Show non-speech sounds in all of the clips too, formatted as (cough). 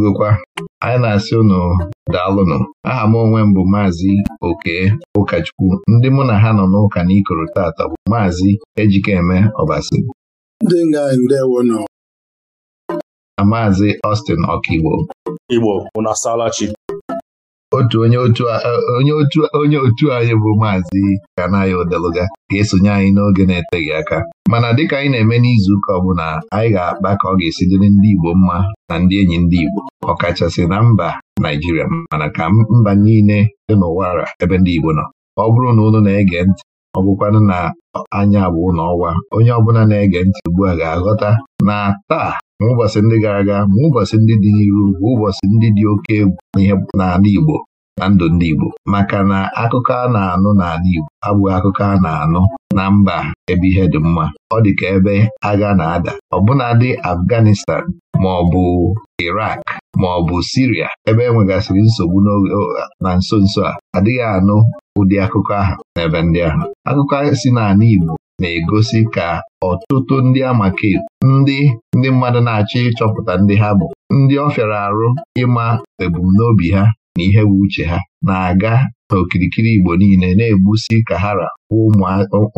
edugokwa anyị na-asị ụnụ daalụnụ aha m onwe m bụ maazị oke ụkọchukwu ndị mụ na ha nọ n'ụka na ikoro tata bụ maazị ejikeme ọbasi na maazị Austin ọkaigbo igbo unu otu onye otu eh, onye otu anyị bụ maazị Kanaya Odeluga ga-esonye anyị n'oge na-eteghị aka mana dịka anyị na-eme n'izuụka ọbụla anyị ga-akpa ka ọ ga-esi dịrị ndị Igbo mma na ndị enyi ndị Igbo ọkachasị na mba Naijiria mana ka mba niile dị n'ụwara ebe ndị Igbo nọ ọ bụrụ na unu na-ege ntị ọ bụkwanụ na anya abụọ ọwa onye ọbụla na-ege ntị ugbu a ga-aghọta na taa ma ụbọchị ndị gara aga ma ụbọchị ndị dị n'iru bụ ụbọchị ndị dị oke egwu n'ihe n'ala Igbo na ndụ ndị Igbo maka na akụkọ a na-anụ n'ala Igbo abụghị akụkọ a na-anụ na mba ebe ihe dị mma ọ dị ka ebe agha na-ada ọbụnadị Afghanistan ma ọ bụ Irak. ma ọ bụ Siria ebe e nwegasịrị nsogbu na nso nso a adịghị anụ ụdị akụkọ ahụ n'ebe ndị ahụ akụkọ si n'ala Igbo na-egosi ka ọtụtụ ndị amake ndị ndị mmadụ na-achọ ịchọpụta ndị ha bụ ndị ọ fịara arụ ịma ebumnobi ha na ihe bụ uche ha na-aga n'okirikiri Igbo niile na-egbusi kahara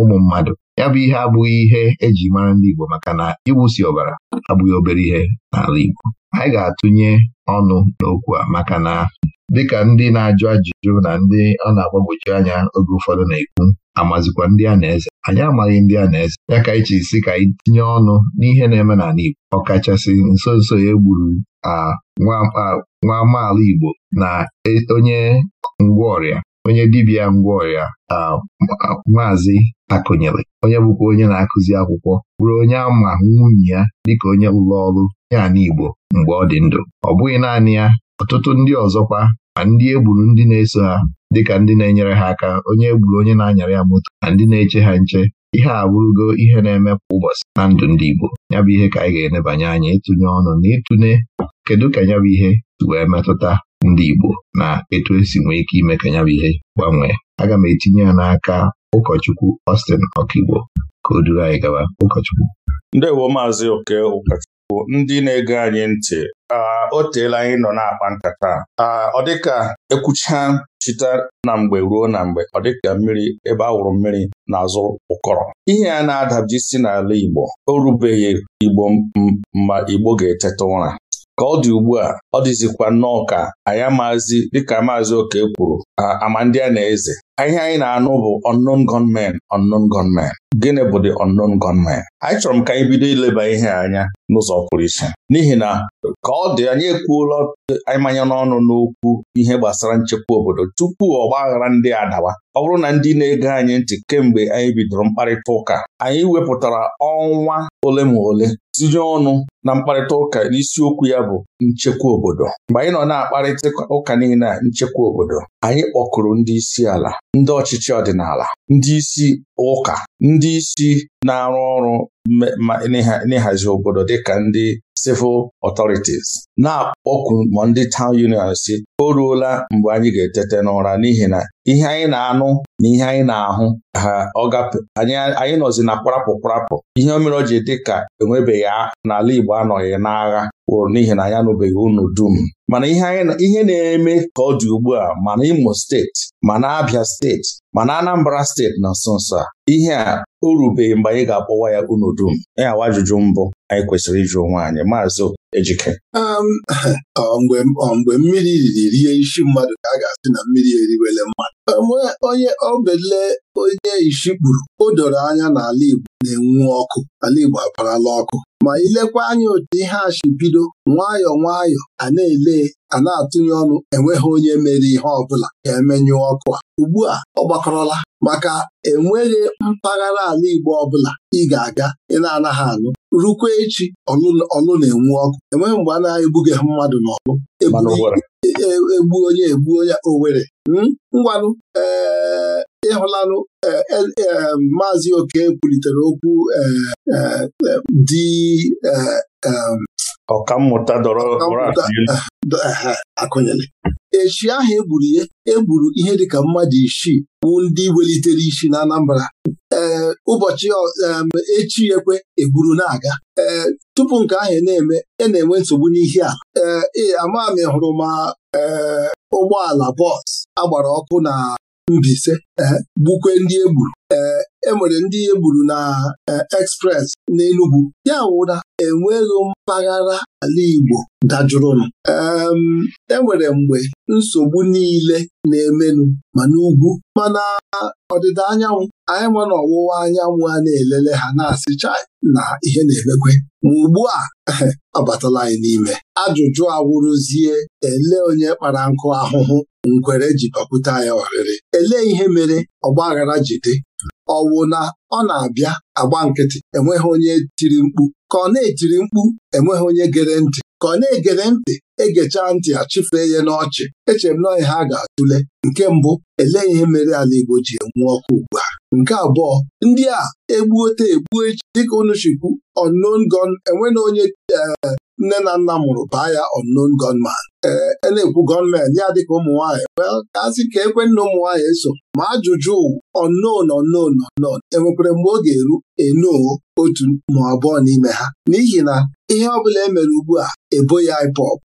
ụmụ mmadụ ya bụ ihe abụghị ihe eji mara ndị Igbo maka na iwusi ọbara abụghị obere ihe n'ala Igbo anyị ga-atụnye ọnụ n'okwu a maka na dịka ndị na-ajụ ajụjụ na ndị ọ na-agbagwoju anya oge ụfọdụ na-ekwu amazikwa ndị a na-eze anyị amaghị ndị a na-eze ya ka anyị chiri ka anyị tinye ọnụ n'ihe na-eme n'ala Igbo ọkachasị nso nso ya e egburu nwa amaala Igbo na e, onye ngwaọrịa onye dibịa ngwaọrịa maazị akụnyere onye bụkwa onye na-akụzi akwụkwọ bụrụ onye ama nwunye ya dịka onye ụlọ ọrụ ya na Igbo mgbe ọ dị ndụ ọ bụghị naanị ya ọtụtụ ndị ọzọkwa ma ndị egburu ndị na-eso ha dịka ndị na-enyere ha aka onye egburu onye na-anyara ya moto na ndị na-eche ha nche ihe a bụrụgo ihe na-eme kwa ụbọchị na ndụ ndị Igbo ya bụ ihe ka anyị ga-enebanye anya ịtụnye ọnụ na ịtụne kedu ka ya bụ ihe wee metụta ndị Igbo na etu esi nwee ike ime ka ya bụ ihe gbanwee aga m etinye ya n'aka ụkọchukwu Austin Okigbo ka o duru anyị gaba ụkọchukwu ndewo maazị oke ụkọchukwu ndị na-ege anyị ntị o teela anyị nọ na-akpa nkata ọ dịka ekwucha chita na mgbe ruo na mgbe ọ dịka mmiri ebe a wụrụ mmiri n'azụ ụkọrọ ihe a na-adabji si n'ala Igbo o rubeghị Igbo ma Igbo ga-eteta ụra ka ọ dị ugbu a ọ dịzikwa nnọọ ka anyị amazi dịka maazị oke kwuru ama ndị a na-eze ihe anyị na-anụ bụ unknown gunmen unknown gunmen gịnị bụ the unknown gunmen anyị chọrọ m ka anyị bido ileba ihe anya n'ụzọ pụrụ iche n'ihi na ka ọ dị anyị ekwuola anyị manya n'ọnụ n'okwu ihe gbasara nchekwa obodo tupu ọgba aghara ndị adawa ọ bụrụ na ndị na-ege anyị ntị kemgbe anyị bidoro mkparịta ụka anyị wepụtara ọnwa ole ma ole tinye ọnụ na mkparịta ụka n'isiokwu ya bụ nchekwa obodo mgbe anyị nọ na-akparịta ụka niile nchekwa obodo anyị kpọkụrụ ndị isi ala ndị ọchịchị ọdịnala ndị isi ụka ndị isi na-arụ ọrụ n'ịhazi obodo dịka ndị civil authorities na-akpọku ma ndị town union si o ruola mgbe anyị ga-etete n'ụra n'ihi na ihe anyị na-anụ na ihe anyị na-ahụ anyị nọzi na kparapụ kparapụ ihe o mere o ji dị ka enwebeghị n'ala Igbo anọghị n'agha wụrụ n'ihi na anyị anụbeghị unu dum mana ihe na-eme ka ọ dị ugbu a mana Imo steeti mana Abia steeti mana Anambra steeti na nso nso a ihe a o rubeghị mgbe anyị ga-akpọwa ya unu dum ya wa ajụjụ mbụ anyị kwesịrị ịjụ onwe anyị maazị Ejike um, mgbe mmiri riri rie isi mmadụ ka a ga-asị na mmiri eriwele mmadụ um, onye obele onye isi kpuru o doro anya n'ala Igbo na-enwu ọkụ ala Igbo aparala ọkụ ma ilekwa anya otu ihe a bido nwayọọ nwayọọ a na-ele a na-atụnye ọnụ enweghị onye mere ihe ọbụla ga-emenyụ ọkụ a ugbu a ọ gbakọrọla maka enweghị mpaghara ala Igbo ọbụla ị ga-aga ị na-anaghị anụ rukwa echi ọlụ na-enwu ọkụ enweghị mgbe a na-egbughị mmadụ n'ọlụ e, e, egbu onye egbu onye Owere hmm? ngwanụ ịhụlalụ eh, eh, eh, maazị oke kwulitere okwu dị um, ọkammụta akụnyere echi ahụ egburu ya egburu ihe dịka mmadụ isii bụ ndị welitere isi na Anambra ee ụbọchị um, echi ekwe egburu na-aga ee tupu nke ahụ e na-eme e na-enwe nsogbu n'ihi a ee ama m hụrụ ma ụgbọala bọs agbara ọkụ na Mbise gbukwe eh, ndị e gburu eh, E enwere ndị e gburu na eh, Express n'Enugwu ya wụra na enweghị mpaghara ala Igbo dajụrụnụ enwere e mgbe nsogbu niile na-emenụ ma n'ugwu mana ọdịda anyanwụ anyị nwa na ọwụwa anyanwụ a na-elele ha na-asị chai na ihe na-emekwe ma ugbu a abatala (laughs) anyị n'ime ajụjụ awụrụzie ele onye kpara nkụ ahụhụ nkwere ji bakwute ya ọrịrị elee ihe mere ọgba aghara ji dị ọwụ na ọ na-abịa agba nkịtị enweghị onye tiri mkpu ka ọ na-etiri mkpu enweghị onye gere ntị ka ọ na-egere ntị egechaa ntị achịfee ya n'ọchị echere m na ọhịa ha ga-atụle nke mbụ elee ihe mere ala Igbo ji enwu ọkụ ugbu a nke abụọ ndị a egbuote egbuo echi dịka unu chikwu unknown gun enwena onye eh, nne na nna mụrụ baa ya unknown gunman ee eh, na-ekwu gọọmenti ya dịka ụmụ nwaanyị kasị ka ekwe nna ụmụ eso ma ajụjụ unknown unknown unknown enwekwere mgbe ọ ga-eru enoo otu ma abụọ n'ime ha n'ihi na ihe ọ bụla emere ugbu a ebo ya ipop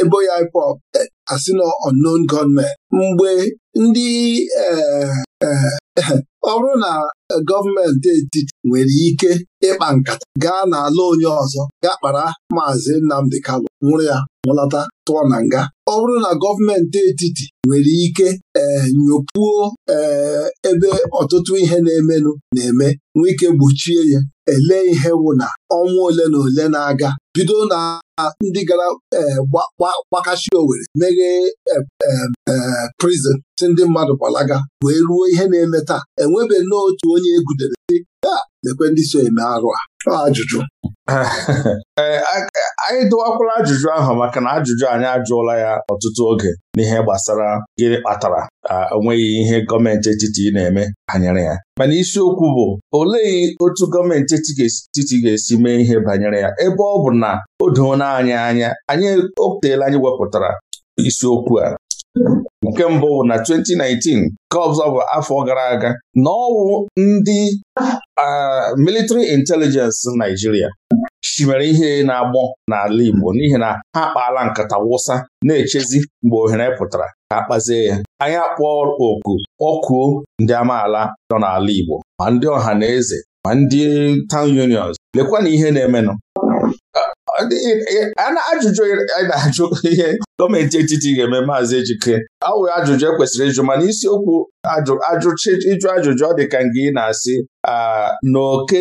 ebo e ya ipop eh, asị na unknown gunmen mgbe ndị ee ọ bụrụ na e, gọọmenti etiti nwere ike ịkpa nkata gaa n'ala onye ọzọ gaa kpara maazị Nnamdi Kalu nwụrụ ya nwụlọta tụọ na nga ọ bụrụ na gọọmenti etiti nwere ike ee eh, nyopuo ee eh, ebe ọtụtụ ihe na-emenụ na-eme nwee ike gbochie ya ele ihe wụ na ọnwa ole na ole na-aga bido na ndị gara eh, gbakachi owere meghee prison si ndị mmadụ gbalaga wee ruo ihe na-eme taa enwebe n'otu onye egudere si a lekwe ndị so eme arụ a ajụjụ (laughs) anyị dụwakwala ajụjụ ahụ maka na ajụjụ anyị ajụọla ya ọtụtụ oge n'ihe gbasara gịnị kpatara onweghị ihe gọọmenti etiti na-eme banyere ya mana isiokwu bụ olee otu gọọmenti etiti ga-esi mee ihe banyere ya ebe ọ bụ na o doona anyị anya anyị o anyị wepụtara isiokwu a nke mbụ na 2019 ka ọzọ bụ afọ gara aga na ọwụ ndị military intelijensị Naijiria nwere ihe na-agbọ n'ala Igbo n'ihi na ha akpaala nkata wụsa na-echezi mgbe ohere pụtara ka a kpazie ya anyị akpọọ oku ọkụo ndị amaala nọ n'ala Igbo ma ndị ọha na eze ma ndị town unions lekwa na ihe na-emenụ a na-ajụjụ a na-ajụ ihe gọọmenti etiti ga-eme maazị Ejike awụghị ajụjụ ekwesịrị ịjụ mana isiokwu ajụchi ịjụ ajụjụ ọ dị ka nke ị na-asị na oke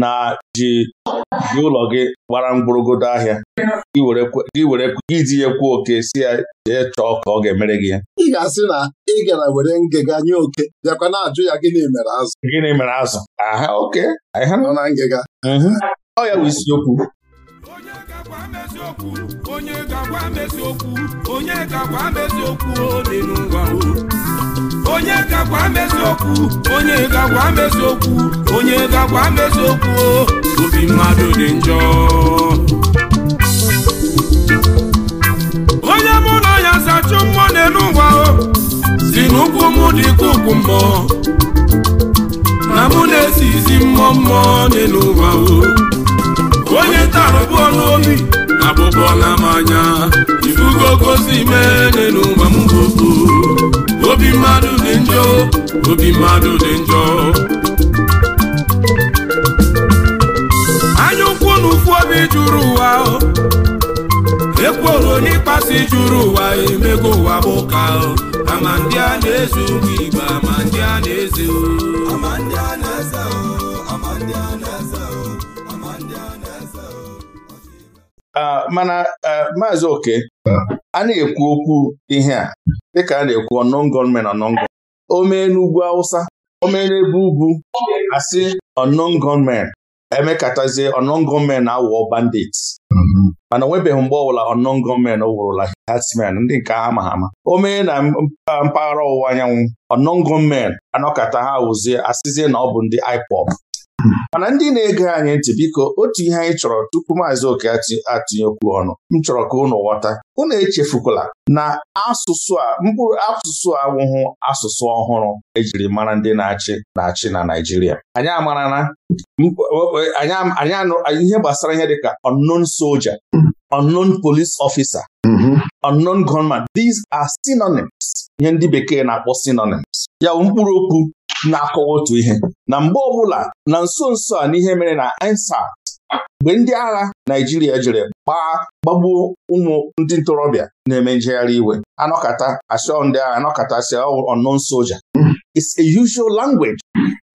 na ji gị ụlọ gị gbara mgbụrụgodo ahịa gị were iji ya kwuo oke si ya jee chọọ ka ọ ga-emere gị ya ị ga-asị na ị gara were ngịga nye oke bịakwa na-ajụ ya gịnị mere azụ gịnị mere azụ aha oke aha nọ na ngịga ọ ya bụ isiokwu eziokwu onye ga-agwa m eziokwu onye ga-agwa m eziokwu dị n'ụwa onye ga-agwa m eziokwu onye ga-agwa m eziokwu onye ga-agwa m eziokwu obi mmadụ dị njọ onye mụ na ya zachụ mmụọ n'elu ụwa si n'ụkwụ m dị ka ụkwụ mmụọ na mụ na esizi mmụọ mmụọ n'elu ụwa onye tara bụ ọnụ obi agbụgbọ na mmanya ifugo kosi mene n'ụwa m gbogbo obi mmadụ dị njọ obi mmadụ dị njọ anya ukwu na obi juru ụwa ekworo n'ịkpasi juru ụwa emego ụwa bụ ka ama ndị a na-ezu igbe ama ndị a na-eze ama Ah, mana ah, maazị oke a na-ekwu okwu ihe a dịka a na-ekwu ọnọngọmen ọnọngọ o mee n'ugwu Awụsa o mee n'ebe ugwu asị ọnọngọmen emekatazie ọnọngọmen awụọ bandits mana onwebeghị mgbe ọbụla ọnọngọmen wụrụla herdsmen ndị nke a ama o mee na mpaghara ọwụwa anyanwụ ọnọngọmen anọkata ha wụzie asịzie na ọ bụ ndị IPOB mana ndị na-ege anyị ntị biko otu ihe anyị chọrọ tupu maazị oke atụnyekwu ọnụ m chọrọ ka unu ghọta unu echefukwala na asụsụ a mkpụrụ asụsụ awụhụ asụsụ ọhụrụ ejiri mara ndị na-achị na-achị na Naijiria anyị amara na ihe gbasara ihe dịka unknown soldier unknown police officer mm-hmm. unknown gunman these are synonyms ihe ndị bekee na-akpọ synonyms ya bụ mkpụrụ okwu na-akọwa otu ihe na mgbe ọbụla na nso nso a n'ihe mere na INSAT mgbe ndị agha Naijiria jere gbaa gbagbuo ụmụ ndị ntorobịa na-eme njegharị iwe anọkata asịọ ndị agha anọkata asịọ unknown soldier it's a usual language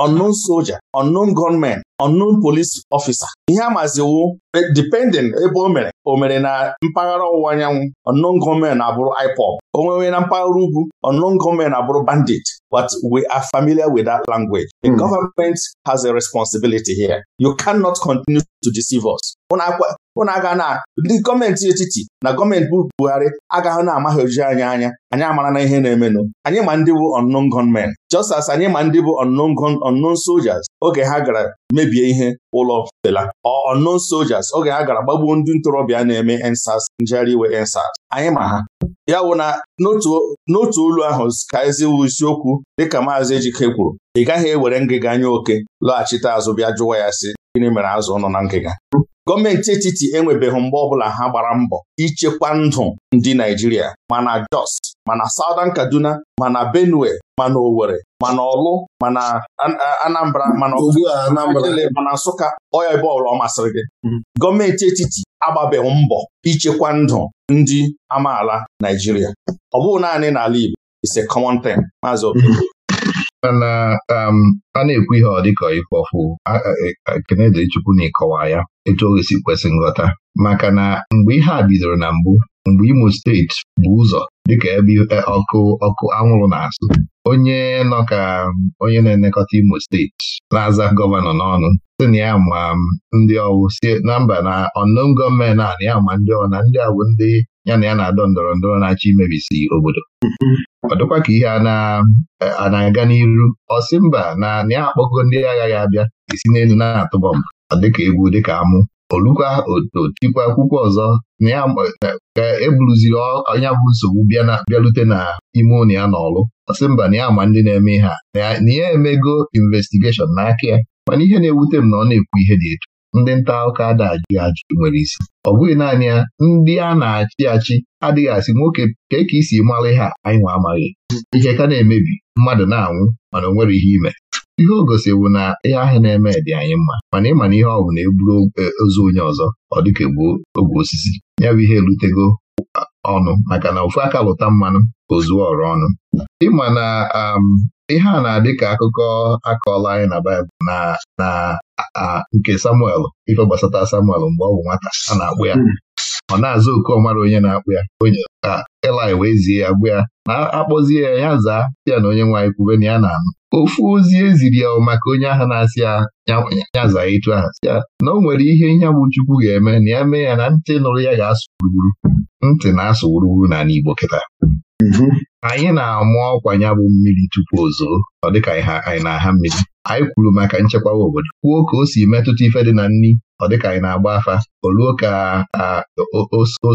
unknown soldier unknown gunmen unknown police officer ihe a maziwo e, depending ebe o mere o mere na mpaghara ọwụwa anyanwụ unknown gunmen abụrụ IPOB o nwewe na mpaghara ugwu unknown gunmen abụrụ bandit but we are familiar with that language The mm. government has a responsibility here. You cannot continue to deceive us. Ụnụ aga na ndị gọọmenti etiti na gọọmenti bu Buhari agaghị na-amaghị ojii anya anya anyị amara na ihe na-emenụ anyị ma ndị bụ unknown gunmen just as anyị ma ndị bụ unknown soldiers oge ha gara mebie ihe ụlọ Fela or unknown soldiers oge ha gara gbagbuo ndị ntorobịa na-eme ensas njegharị iwe ensas anyị ma ha ya wụ na n'otu olu ahụ ka eziwu isiokwu dịka Maazị Ejike kwuru ị gaghị ewere ngịga anya oke lọghachite azụ bịa jụwa ya sị gịnị mere azụ nọ na ngịga gọọmenti etiti enwebeghị mgbe ọbụla ha gbara mbọ ichekwa ndụ ndị Naijiria mana Jos mana Southern Kaduna mana Benue mana Owere mana Olu mana Anambra mana mana Nsụka ọya ebe ọbụla ọ masịrị gị mm-hmm. gọọmenti etiti agbabeghị mbọ ichekwa ndụ ndị amaala Naijiria ọ bụghị naanị n'ala Igbo Ise a Maazị thing mana um, a na-ekwu ihe ọ dịka ifọfụ ekene e, dịrị Chukwu na ịkọwa ya etu o si kwesị nghọta maka na mgbe ihe a bidoro na mbụ mgbe Imo steeti bụ ụzọ dịka ebe ọkụ ọkụ anwụrụ na-asụ onye nọ ka onye na-elekọta Imo steeti na-aza gọvanọ n'ọnụ sị na ya ma ndị ọwụ na mba na ọnụm gọọmenti a na ya ma ndị ọwụ na ndị ọwụ ndị ya na ya na-adọ ndọrọ ndọrọ na-achọ imebisi obodo ọ dịkwa ka ihe a na-aga n'iru ọsị mba na ya akpọgo ndị agha ya abịa esi n'elu na-atụ bọmbụ dịka egwu dịka amụ olukwa otikwa akwụkwọ ọzọ ka eburuziri ọnya bụ nsogbu bịarute na ime ụlọ ya n'ọlụ ọsị mba na ya ma ndị na-eme ihe na ya emego investigeshọn n'aka ya mana ihe na-ewute m na ọ na-ekwu ihe dị etu ndị nta akụkọ ada ajụ nwere isi ọ bụghị naanị ya ndị a na-achị achị adịghị asị nwoke ka ị si mara ha anyị nwa amaghị ihe ka na-emebi mmadụ na-anwụ mana o nwere ihe ime ihe o gosiwu na ihe ahịa na-eme dị anyị mma mana ịma na ihe ọ bụ na eburu e, ozu onye ọzọ ọ dịka egbuo ogwe osisi ya bụ ihe elutego ọnụ maka na ofu aka lụta mmanụ ozu ọrụ ọnụ ịma na um, ihe a na-adị ka akụkọ akọọla anyị na Baịbụl na na nke Samuel ife gbasata Samuel mgbe ọ bụ nwata a na-akpụ ya hmm. ọ na-aza ọmara onye na-akpụ ya onye ka wee zie ya gwa ya na akpọzie ya ya zaa ya na onye nwaanyị kwube na ya na-anụ ofu ozi eziri ya maka onye ahụ na-asị ya ya zaa ịtụ ahụ sị ya na o nwere ihe ihe bụ Chukwu ga-eme na ya mee ya na ntị nụrụ ya ga-asụ gburugburu ntị na-asụ gburugburu n'ala Igbo kịta mhm. anyị na-amụ ọkwa ya bụ mmiri tupu ozo ọ dịka anyị na-aha mmiri anyị kwuru maka nchekwawa obodo kwuo ka o si metụta ife dị na nri ọ dịka anyị na-agba afa o ruo ka o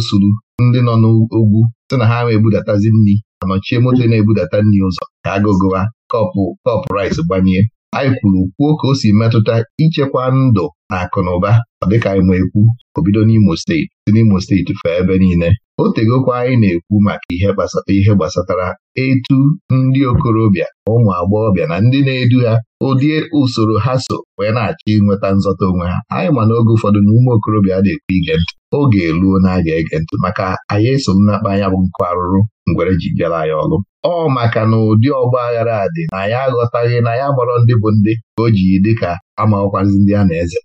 ndị nọ n'ugwu sị na ha ama ebudatazi nri anọchie moto na-ebudata nri ụzọ ka agụgụwa kọpụ kọpụ rice gbanye anyị kwuru kwuo ka o si metụta ichekwa ndụ na akụ na ụba dịka anyị ma ekwu obido n'Imo steeti si n'Imo steeti fee ebe niile o tegokwa anyị na-ekwu maka ihe ihe gbasatara etu ndị okorobịa ụmụ agbọghọbịa na ndị na-edu ha ụdị usoro ha so wee na-achọ ịnweta nzọta onwe ha anyị ma na oge ụfọdụ na ụmụ okorobịa a na-ekwu ige ntị oge eluo na a ga-ege ntị maka anyị eso nnakpa anya bụ nkụ arụrụ ngwere ji bịara anyị ọrụ ọ maka na ụdị ọgba aghara a dị na ya aghọtaghị na ya gbọrọ ndị bụ ndị ka o ji dị ka amaghọkwazi ndị a na-eze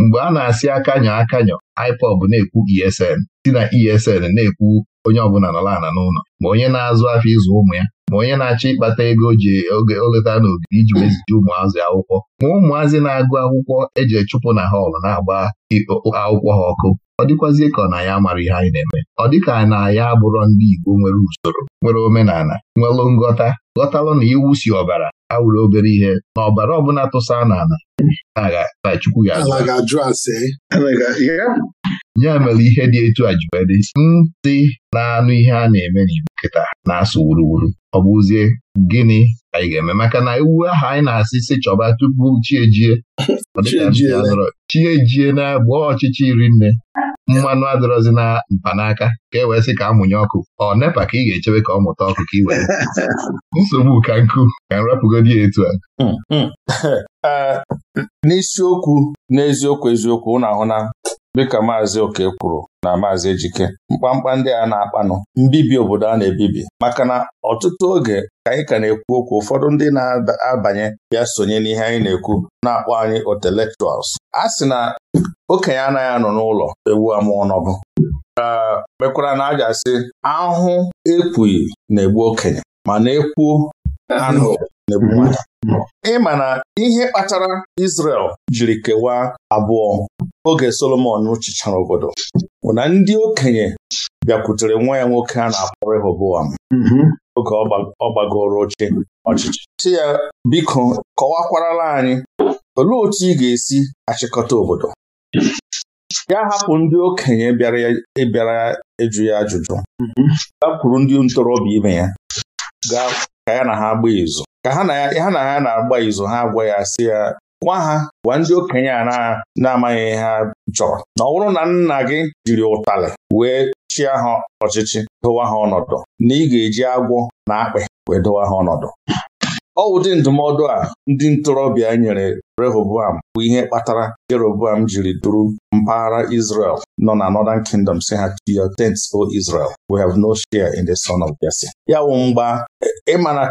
mgbe a na-asị akanyọ akanyọ IPOB na-ekwu ESN si na ESN na-ekwu onye ọbụla nọrọ ala n'ụlọ ma onye na-azụ afọ ịzụ ụmụ ya ma onye na-achọ ịkpata ego ji oge oleta n'ogige iji mezite ụmụazị akwụkwọ ma ụmụazị na-agụ akwụkwọ eji chụpụ na họlụ na-agba akwụkwọ ha ọkụ ọ dịkwazie ka ọ na ya mara ihe anyị na-eme ọ dịka na ya abụrọ ndị Igbo nwere usoro nwere omenala nwelụ ngọta, ghọtalụ na iwu si ọbara awụrụ obere ihe na ọbara ọbụla tụsa n'ala na Chukwu ya ya mere ihe dị etu a ji ntị na-anụ ihe a na-eme n'Igbo kịta na-asụ wuruwuru ọ bụzie gịnị anyị ga-eme maka na iwu ahụ anyị na-asị sị chọba tupu chi ejie chi ejie na-agba ọchịchị iri nne mmanụ adịrọzi na mpanaka ka e wee sị ka amụnye ọkụ ọ nepa ka ị ga-echebe ka ọ mụta ọkụ ka ị were (laughs) nsogbu ka nkụ ka nrapụgodi ya etu a hmm, hmm. (laughs) Eh, n'isiokwu n'eziokwu eziokwu ụnụ ahụ na dịka Maazị Oke kwuru na Maazị Ejike mkpamkpa ndị a na-akpanụ mbibi obodo a na-ebibi maka na ọtụtụ oge ka anyị ka na-ekwu okwu ụfọdụ ndị na-abanye bịa sonye n'ihe anyị na-ekwu na-akpọ anyị otelektuals. a sị na okenye anaghị anọ n'ụlọ ewu amụọ n'ọbụ. mekwara na aja sị ahụhụ ekwughị na-egbu okenye mana ekwuo anụ na ebu nwata na ihe kpatara isrel jiri kewaa abụọ oge Solomon chịchara obodo bụ na ndị okenye bịakwutere nwa ya nwoke a na-akpọ Rehoboam mhm. oge ọ gbagoro oche ọchịchị si ya biko kọwakwarala anyị olee otu ị ga-esi achịkọta obodo ya hapụ ndị okenye bịara e ịjụ ya ajụjụ mhm. ya kwuru ndị ntorobịa ibe ya gaa ka ya na ha gbaa izu ka ha na ya na na-agba izu ha agwa ya si ya gwa ha gwa ndị okenye a na-amaghị ha chọrọ na ọ bụrụ na nna gị jiri ụtalị wee chịa ha ọchịchị dụwa ha ọnọdụ na ị ga-eji agwọ na akpị wee dụwa ha ọnọdụ ọ ụdị ndụmọdụ a ndị ntorobịa nyere Rehoboam bụ ihe kpatara Jeroboam jiri duru mpaghara Israel nọ na Northern Kingdom si ha to your tents o Israel we have no share in the son of Jesse ya wụ mgba ịmana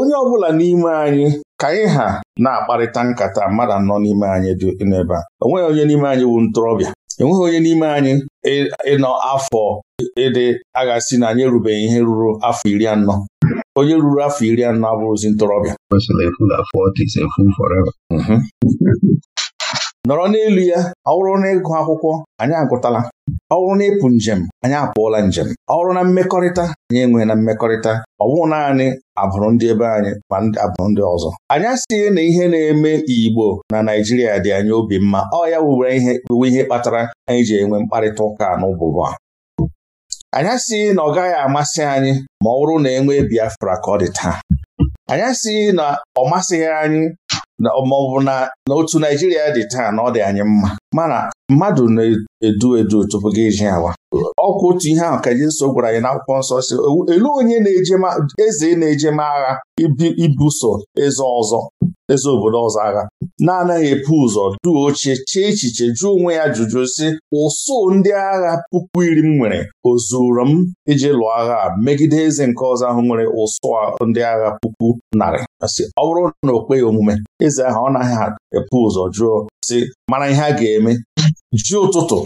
onye ọ bụla n'ime anyị ka anyị ha na-akparịta nkata mmadụ anọ n'ime anyị dị n'ebe a o onye n'ime anyị bụ ntorobịa enweghị onye n'ime anyị ịnọ afọ ịdị si na anyị erubeghị ihe ruru afọ iri anọ onye ruru afọ iri anọ abụrụzi ntorobịa nọrọ n'elu ya ọ bụrụ na ịgụ akwụkwọ anyị agụtala ọ bụrụ na ịpụ njem anyị apụọla njem ọ bụrụ na mmekọrịta anyị enweghị na mmekọrịta ọ bụghị naanị abụrụ ndị ebe anyị ma abụrụ ndị ọzọ anyị asịghị na ihe na-eme Igbo na Naijiria dị anyị obi mma ọ ya wubere ihe ihe kpatara anyị ji enwe mkparịta ụka n'ụbụbụ a anyị asịghị na ọ gaghị amasị anyị ma ọ bụrụ na enwee Biafra ka ọ dị taa anyị asịghị na ọ masịghị anyị ma ọ bụ na otu Naijiria dị taa na ọ dị anyị mma mana mmadụ na-edu edu tupu gị eji awa ọkwụ otu ihe ahụ ka nso gwara anyị na n'akwụkwọ nsọ si elu onye na-ejema eze na-ejema agha ibuso eze ọzọ eze obodo ọzọ agha na-anaghị epu ụzọ duo oche chee echiche jụọ onwe ya jụjụ si ụsụ ndị agha puku iri m nwere o zuru m iji lụọ agha megide eze nke ọzọ ahụ nwere ụsụ ndị agha puku narị ọ bụrụ na o kpeghị omume eze ahụ ọ naghị epu ụzọ jụọ si mara ihe a ga-eme ji ụtụtụ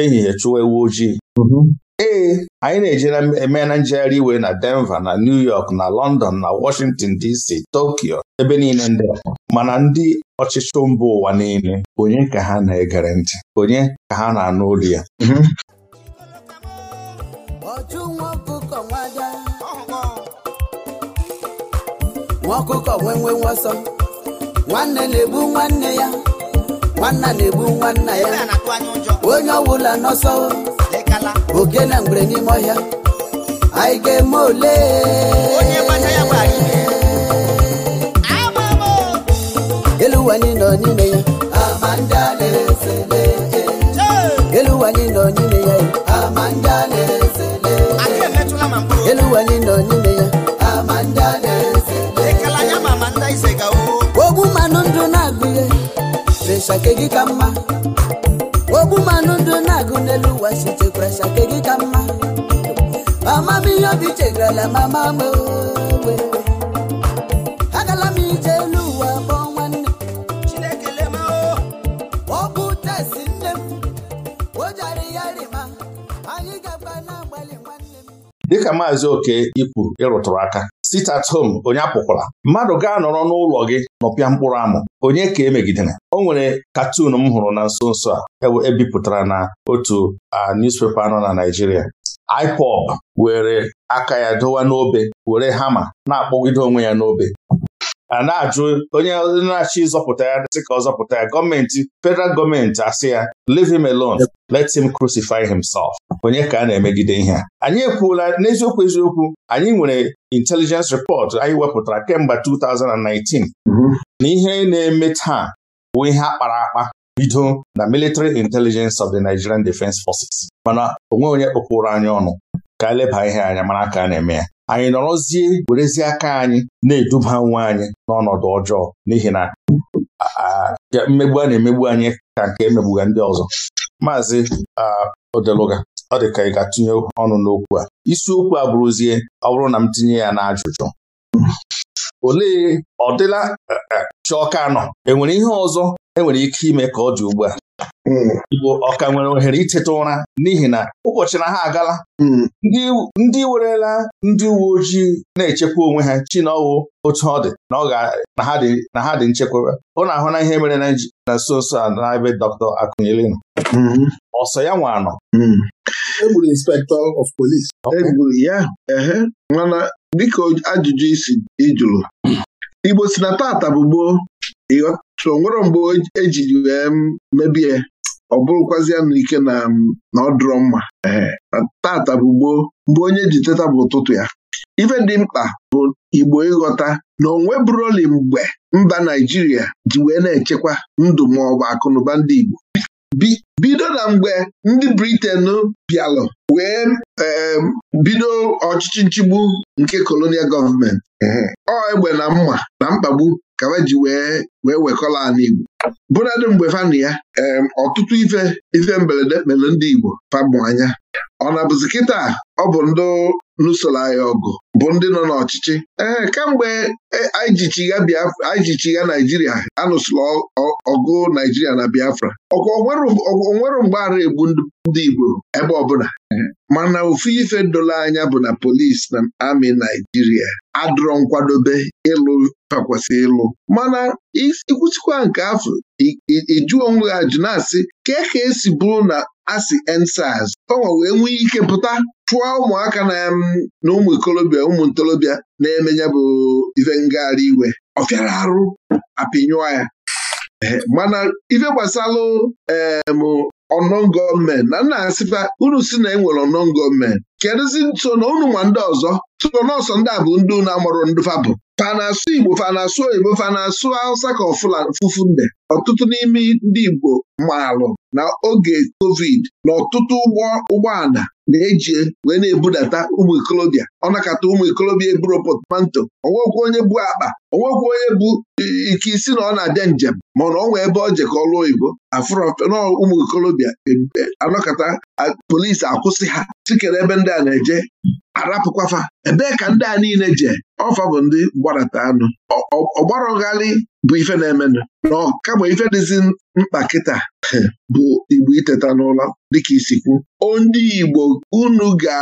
ehihie chụwa ewu ojii mhm. ee anyị na-ejere eme na njegharị iwe na Denver na New York na London na Washington DC Tokyo ebe niile ndị mana ndị ọchịchị mba ụwa niile onye ka ha na-egere ntị onye ka ha na-anụ olu ya mhm. nwa ọkụkọ nwasọ nwanne na nwanne ya nwanna na-egbu nwanna ya onye ọbụla n'ọsọ ogene mgbere n'ime ọhịa anyị ga-eme ole elu ụwa anyị nọ n'ime ya elu ụwa anyị nọ n'ime ya elu ụwa anyị nọ n'ime ya gị ka mma ogbu mmanụ ndụ na-agụ n'elu ụwa sitekwa ke gị ka mma mama m ihe obi mama agala m ije dịka maazị oke ikwu ịrụtụrụ aka sit at home onye apụkwala mmadụ gaa nọrọ n'ụlọ gị nọpịa mkpụrụ amụ onye ka emegidere o nwere katun m hụrụ na nso nso a ebipụtara e na otu newspaper nọ na Naịjirịa IPOB were aka ya dowa n'obe were hama na-akpọgide onwe ya n'obe a na-ajụ onye na achị ịzọpụta ya sị ka ọ zọpụta ya gọọmenti federal gọọmenti asị ya leave him alone let him crucify himself onye ka a na-emegide ihe a anyị ekwuola n'eziokwu eziokwu anyị nwere intelligence report anyị wepụtara kemgbe 2019 na ihe na-eme taa bụ ihe a kpara akpa bido na military intelligence of the Nigerian Defence Forces mana onwe onye kpọkwụrụ anyị ọnụ ka eleba ihe anya mara ka a na-eme ya anyị nọrọzie werezie aka anyị na-eduba nwa anyị n'ọnọdụ ọjọọ n'ihi na mmegbu a na-emegbu anyị ka nke emegbuga ndị ọzọ maazị Odeluga ọ dị ka ị ga-atụnye ọnụ n'okwu a isiokwu a bụrụzie ọ bụrụ na m tinye ya n'ajụjụ olee ọdịla e, e, Chiọka nọ enwere ihe ọzọ enwere ike ime ka ọ dị ugbu a Igbo ọ ka nwere ohere iteta ụra n'ihi na ụbọchị na ha agala hmm. ndị werela ndị uwe ojii na-echekwa onwe ha chi na ọwụ otu ọ dị na ha dị nchekwaba ọ na-ahụ na ihe mere na nso nso a na-ebe Dọkịta Akunyili nọ hmm. ọsọ ya nwanọ hmm. egburu inspektọ of polis egburu ya ehe mana dịka ajụjụ isi ịjụrụ Igbo si na tata bụ gboo ịghọta nwere mgbe ejiri wee mebie ọ bụrụkwazịa ike na na ọ mma ee tata bụ gboo mgbe onye ji teta bụ ụtụtụ ya ife dị mkpa bụ Igbo ịghọta na onwe bụrụli mgbe mba Naijiria ji wee na-echekwa ndụ ma ọ bụ akụnụba ndị Igbo bido na mgbe ndị Briten bịalụ wee bido ọchịchị nchigbu nke kolonial gọọmenti ọ egbe na mma na mkpagbu ka ji wee wee wekọla ala Igbo bụnadị mgbe fanụ ya ọtụtụ ife ife mberede mere ndị Igbo fabụ anya ọ na-abụzi kịta ọ bụ ndị nusoro anyị ọgụ bụ ndị nọ n'ọchịchị ee kemgbe e, anyị jichigha Naijiria anụsụrụ ọgụ Naijiria na Biafra ọkwa onwere mgbaghara egbu ndị Igbo ebe ọbụla mana ofu ife dolo anya bụ na polisi na amị Naijiria adụrọ nkwadobe ịlụ takwasị ịlụ mana ikwusikwa nke afọ ịjụ onwe ha jụ na-asị ka ka esi bụrụ na asị ensaz ọnwa wee e nwee ike pụta chụọ ụmụaka na na ụmụ ikolobịa ụmụ ntorobịa na emenye bụ ife ngagharị iwe ọ fịara arụ apịnyụọ ya mana ife gbasalụ em ọnọn gọọmenti na nna asịfa unu si na enwere ọnọn gọọmenti kedụzi nso na unu ma ndị ọzọ tụọ nọọsọ ndị a bụ ndị unu amụrụ ndụfa bụ fanasụ Igbo fanasụ oyibo fanasụ Hausa ka Nde ọtụtụ n'ime ndị Igbo maalụ na oge covid na ọtụtụ ụgbọ ụgbọala na-eji wee na-ebudata ụmụ ikolobịa ọ ụmụ ikolobịa eburo potmanto onwekwu onye bụ akpa onwekwu onye bụ ike isi na ọ na-abịa njem mana ọ nwee ebe ọ jekọọlụ oyibo afụrọ ụmụ ikolobịa e- e- anọkọta polisi akwụsị ha tikere ebe ndị a na-eje arapụkwafa ebee ka ndị a niile je ọfa bụ ndị mgbarata anụ ọgbarọgharị bụ ife na-emenụ na ọkabụ ife dịzi mkpa kịta bụ igbo iteta n'ụlọ dịka isikwu ndị igbo unu ga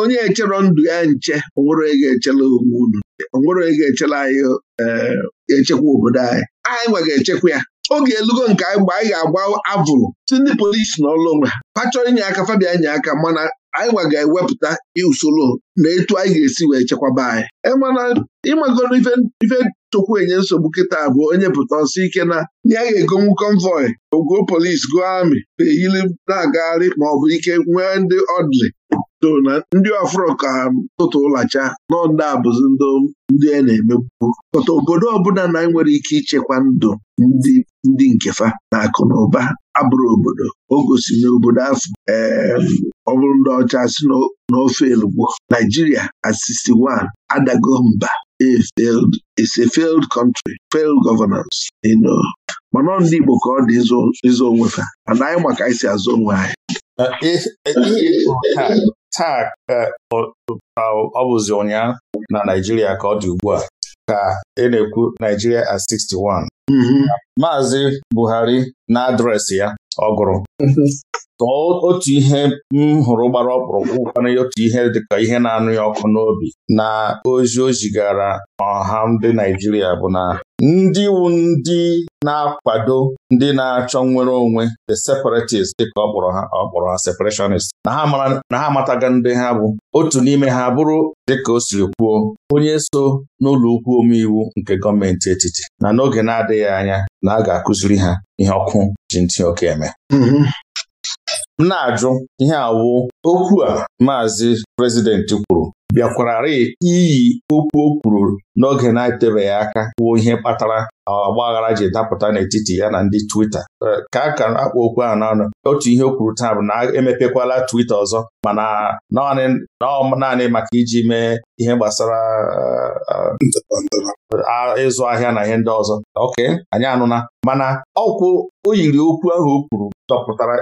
onye echero ndụ ya nche onwere ga-echela onwe unu onwere ga-echela anyị eh, echekwa obodo anyị anyị nwe ga-echekwa ya oge elugo nke anyị mgbe anyị ga-agba avụrụ si ndị polisi na ọlụ onwe ha fa chọrọ inye aka fabia nye aka mana anyị gwa ga-ewepụta usoro na etu anyị ga-esi wee chekwaba anyị e ịmagoro ife tokwu enye nsogbu kịta bụ onye pụta ọsọ ike na ya ga-egonwu konvoi ogo polisi go amị eyili na-agagharị maọbụ ike nwee ndị ọdịlị so na ndị ọfụrụ ka ha tụtụ ụlacha n'ọnda abụzi ndị a na-emegbu pọta obodo ọbụla na nwere ike ichekwa ndụ ndị nkefa na akụ na ụba abụrụ obodo o gosi n'obodo afọ ọ bụrụ ndị ọcha si n'ofe elugbo Naijiria at 61 adago mba is a failed country failed governance ndị Igbo ka ọ dị ịzụ onwefa fa mana anyị maka anyị si azụ onwe anyị Uh, taa ka uh, ọ bụzi ụnyaahụ na Naijiria ka ọ dị ugbu a ka a e na-ekwu Naijiria at 61 Maazị Buhari na adreesị ya ọ gụrụ mm-hmm. tọọ otu ihe m hụrụ gbara ọkpụrụkpụ kwana otu ihe dịka ihe na-anụ ya ọkụ n'obi na ozi o zigara ọha ndị Naijiria bụ na ndị wu ndị na-akwado ndị na-achọ nnwere onwe the separatists dịka ọ ha ọ ha separationist. na ha amataga ndị ha bụ otu n'ime ha bụrụ dịka o siri kwuo onye so n'ụlọ ukwu omeiwu nke gọọmenti etiti na n'oge na-adịghị anya na a ga-akụziri ha ihe ọkụ ji ntị oke eme mm-hmm. m na-ajụ ihe awụ okwu a maazị prezidenti kwuru bịakwararị iyi okwu o kwuru n'oge na-etebeghị aka kwuo ihe kpatara ọgba aghara ji dapụta n'etiti ya na ndị Twita ka a ka akpọ okwu ahụ n'ọnụ otu ihe o kwuru taa bụ na emepekwala Twita ọzọ mana naanị maka iji mee ihe gbasara ịzụ ahịa na ihe ndị ọzọ oke anyị anụna mana ọkwụ o yiri okwu ahụ o kwuru dọpụtara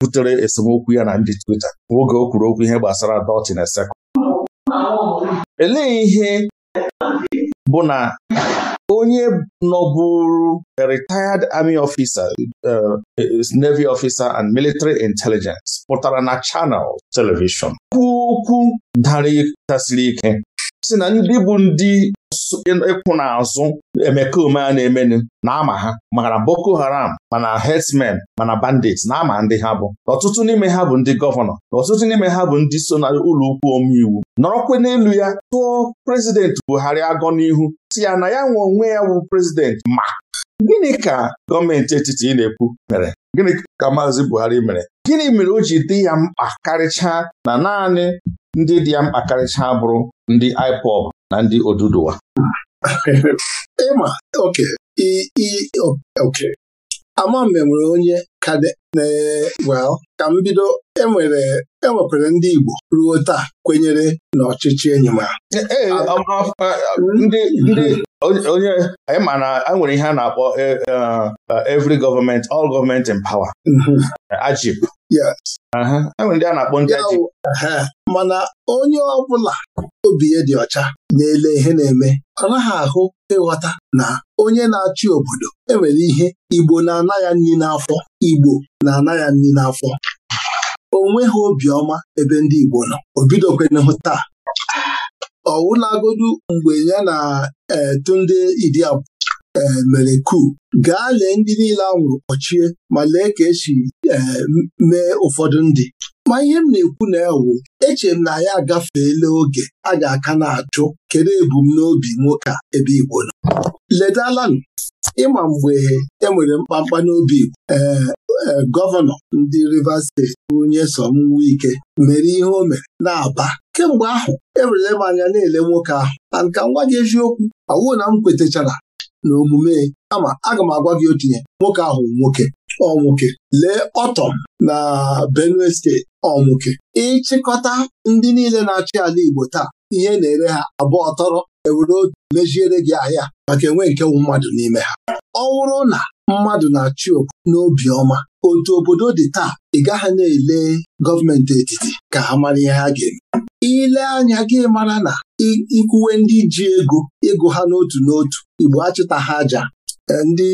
butere esemokwu ya na ndị Twita oge o kwuru okwu ihe gbasara dọtin esekụ elee ihe bụ na onye nọbụrụ a retired army officer uh, uh, navy officer and military intelligence pụtara na Channel Television. okwu dara tasiri ike si na ndị bụ ndị ịkwụ n'azụ emekome a na-emenu na-ama ha mara Boko Haram mana herdsmen mana bandits na-ama ndị ha bụ ọtụtụ n'ime ha bụ ndị gọvanọ na ọtụtụ n'ime ha bụ ndị so na ụlọ omeiwu nọrọkwa n'elu ya tụọ prezidenti Buhari agọ n'ihu si ya na ya nwe onwe ya bụ prezidenti ma Gịnị ka gọọmenti etiti ị na-ekwu mere gịnị ka Maazị Buhari mere gịnị mere o ji dị ya mkpa karịchaa na naanị ndị dị ya mkpa karịchaa bụrụ ndị IPOB na ndị Oduduwa ịma ama m nwere onye well ka m bido enwere enwekwara ndị Igbo ruo taa kwenyere n'ọchịchị enyi m e, e, e, onye anyị ma na e nwere ihe a na-akpọ every government all government in power mhm. ajib enwere ndị a na-akpọ ndị ajib mana onye ọ bụla obi ya dị ọcha na-ele ihe na-eme ọ naghị ahụ ịghọta na onye na-achị obodo enwere ihe Igbo na-ana ya nri n'afọ Igbo na-ana ya nri n'afọ o nweghị obiọma ebe ndị Igbo nọ o taa ọwụlagodu mgbe ya na e, ndị Idiabu e, mere kuu gaa lee ndị niile anwụrụ kpọchie ma lee ka esi e, mee ụfọdụ ndị ma ihe m na-ekwu na ewu echere m na ya agafeela oge a ga-aka na-achụ kedu ebumnobi nwoke a ebe Igbo nọ ledalanụ ịma mgbe enwere mkpamkpa n'obi Igbo e, ee gọvanọ ndị Rivers steeti Nyesom Wike mere ihe o mere na-aba kemgbe ahụ ewerele m anya na-ele nwoke ahụ na nka m gwa gị eziokwu awụ na m kwetechara na omume ama aga m agwa gị otu ihe nwoke ahụ nwoke ọmụke lee ọtọ na Benue steeti ọmụke ịchịkọta ndị niile na-achị ala Igbo taa ihe na-ere ha abụọ ọtọrọ ewere otu mejiere gị ahịa maka enwe nke mmadụ n'ime ha ọ wụrụ na mmadụ na-achị okwu n'obi ọma otu obodo dị taa ị gaghị na-ele gọọmenti etiti ka ha mara ihe ha ga-eme ile anya gị mara na ikwuwe ndị ji ego ịgụ ha n'otu n'otu Igbo achịta ha aja Eh, ndị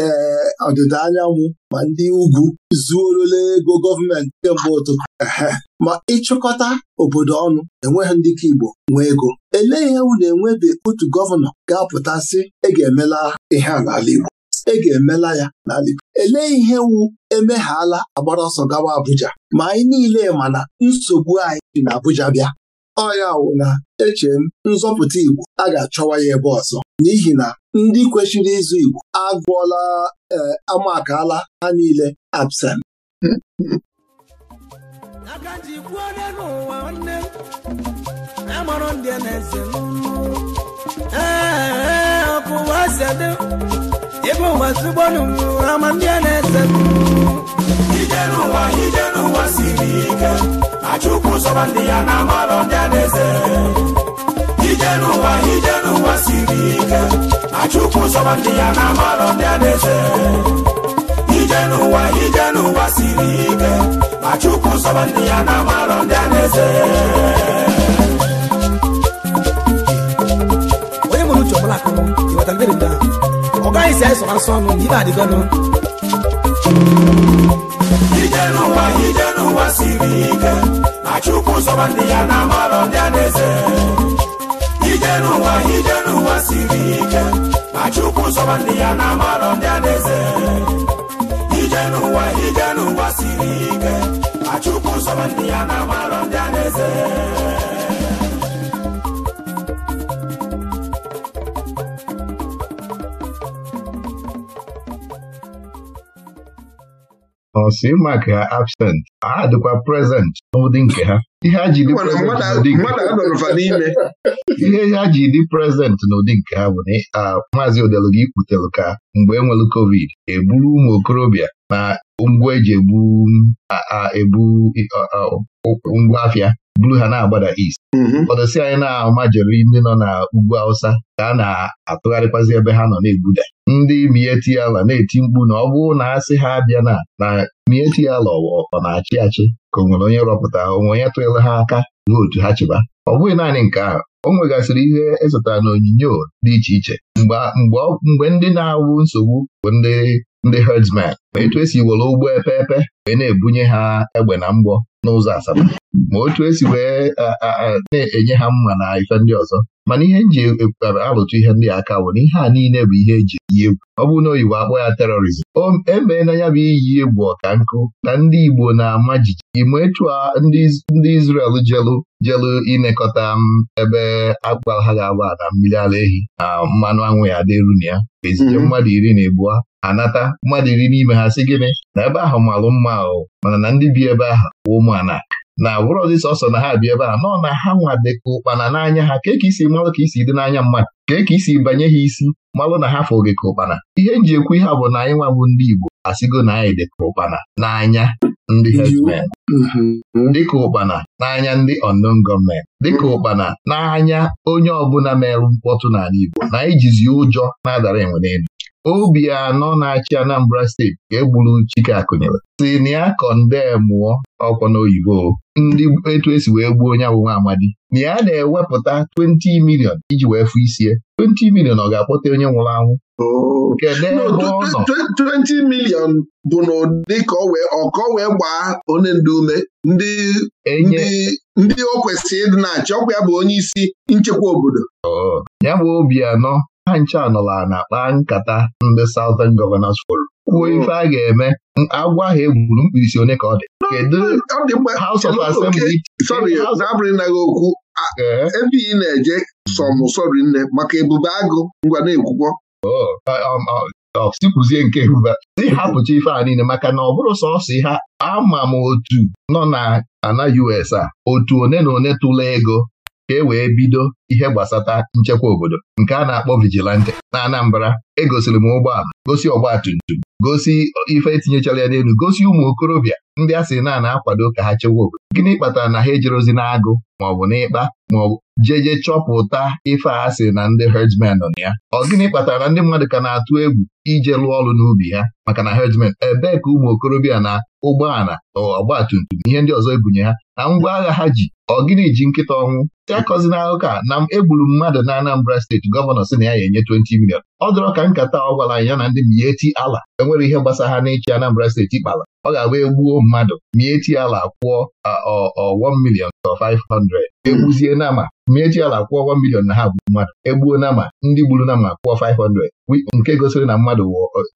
eh, ọdịda anyanwụ ma ndị ugwu zuorola ego gọọmenti kemgbe ụtụtụ ma ịchịkọta obodo ọnụ enweghị ndị ka Igbo nwee ego elee ihe wu na-enwebe otu gọvanọ ga-apụta sị e ga-emela ihe n'ala Igbo e ga-emela ya n'ala Igbo elee ihe wu emeghala agbara ọsọ gawa Abuja ma anyị niile ma na nsogbu anyị dị n'Abuja bịa ọya wụ na eche m nzọpụta Igbo a ga-achọwa ya ebe ọzọ n'ihi na ndị kwesịrị ịzụ Igbo agụọla e, amakala ha niile absent ijere ụwa ijere ụwa siri ike na chukwu na siri ike chukwu na ije n'ụwa ije n'ụwa siri ike ma chukwu ndị ya na amarọ ndị alaeze onye mụrụ uche ọbụla akụrụ ọ gaghị si anyị sọrọ asọ ọnụ na ije n'ụwa ije n'ụwa siri ike na chukwu sọba ndị ya na amarọ ndị adaeze ije n'ụwa ije n'ụwa siri ike na chukwu sọba ndị ya na amarọ ndị adaeze ije n'ụwa ije n'ụwa siri ike na chukwu sọba ndị ya na amarọ ndị adaeze nọsi maka absent ha dịkwa prezent n'ụdị nke ha ihe ha ji dị prezent n'ụdị nke ha bụ na maazị odelu gị ka mgbe e nwere covid eburu ụmụ okorobịa na ngwa eji ebu ebu ngwa afịa buru ha na-agbada East mm-hmm. ọdọsi anyị na-ama jeri ndị nọ na ugwu Hausa ka a na-atụgharịkwazi ebe ha nọ na-egbuda ndị mieti ala na-eti mkpu na ọ bụrụ na asị ha abịa na na mieti ala ọ na-achị achị ka o nwere onye rọpụta onwe onye tụnyere ha aka vootu ha chịba ọ bụghị naanị nke ahụ o nwegasịrị ihe ezụtara na onyinyo dị iche iche mgbe ndị na-awụ nsogbu bụ ndị ndị herdsmen ma etu esi were ụgbọ epe epe wee na-ebunye ha egbe na mgbọ n'ụzọ Asaba ma otu esi wee na-enye ha mma na ife ndị ọzọ mana ihe nji e, e, alụtụ ihe ndị aka bụ na ihe a niile bụ ihe eji iyi egwu ọ bụrụ na oyibo akpọ ya terọrizm emee na ya bụ iyi egwu ọka nkụ na ndị Igbo na-ama jijiji ma etu ndị Izrel jelu jelu inekọta ebe agba ha ga-agba na mmiri ara ehi na mmanụ anwụ ya dịru na ya ezije mhm. mmadụ iri na ebuo anata mmadụ iri n'ime ha si gịnị na ebe ahụ malụ mma ahụ mana na ndị bi ebe ahụ ụmụ anaka na bụrụzi sọsọ na ha bịa ebe a nọ na ha nwa dịka ụkpana n'anya ha ka isi malụ ka isi dị n'anya mmadụ ka ka isi banye ha isi malụ na ha gị ka ụkpana ihe nji ekwu ihe a bụ na anyị nwa bụ ndị Igbo asịgo na anyị dịka ụkpana n'anya ndị herdsmen mhm. dịka ụkpana n'anya ndị unknown gọọmenti dịka ụkpana n'anya onye ọbụla mere mkpọtụ n'ala Igbo na anyị jizi ụjọ na-adara enwere elu obi anọ na-achị Anambra steeti ka egburu Chike Akụnyere si na ya kọnde mụọ ọkwa n'oyibo ndị etu esi wee gbuo onye abụ amadi na ya na-ewepụta 20 milion iji wee fụ isie 20 milion ọ ga-akpọta onye nwụrụ anwụ kedu ebe ọ nọ milion bụ n'ụdị ka ọkọ wee gbaa onye ndị ume ndị ndị o kwesịrị ịdị na-achị ọkwa ya bụ onye isi nchekwa obodo oh. ya bụ obi anọ ha ncha nọla na-akpa nkata ndị Southern Governors Forum kwuo hmm. ife a ga-eme agwa ha egburu mkpirisi onye ka ọ dị kedu House of Assembly okwu eh? ebe ị na-eje Sọm sọmụsọri nne maka ebube agụ ngwa na-ekwukwọ oh, uh, um, uh, uh, sikwuzie nke ebube ịhapụcha ife a niile maka na ọ bụrụ sọsọ ha ama m otu nọ na ana US a otu one na one tụla ego ka e wee bido ihe gbasata nchekwa obodo nke a na-akpọ vigilante na Anambra egosiri m ụgbọala gosi ọgbatumtum gosi ife etinyechara ya n'elu gosi ụmụ okorobịa ndị a sị na na-akwado ka ha chekwa obodo gịnị kpatara na ha ejerozi n'agụ maọbụ n'ịkpa maọbụ jeje chọpụta ife a sị na ndị herdsmen nọ na ya ọ gịnị kpatara na ndị mmadụ ka na-atụ egwu ije lụọ ọrụ n'ubi ha maka na herdsmen ebee ka ụmụ okorobịa na ụgbọala ọgbatumtum ihe ndị ọzọ ebunye ha na ngwa agha ha ji ọ gịnị ji nkịta ọnwụ akọzina e akụkọ a na egburu mmadụ na Anambra steeti gọvanọ si na ya ya enye 20 milion ọ dọrọ ka nkata ọ gwara anyị ya na ndị mieti ala enwere ihe gbasara ha n'ịchị Anambra steeti kpara ọ ga-abụ egbuo mmadụ mieti ala kwụọ 1 million to 500 egbuzie nama mieti ala kwụọ one million na ha bụ mmadụ egbuo nama ndị gburu nama kwụọ 500 nke gosiri na mmadụ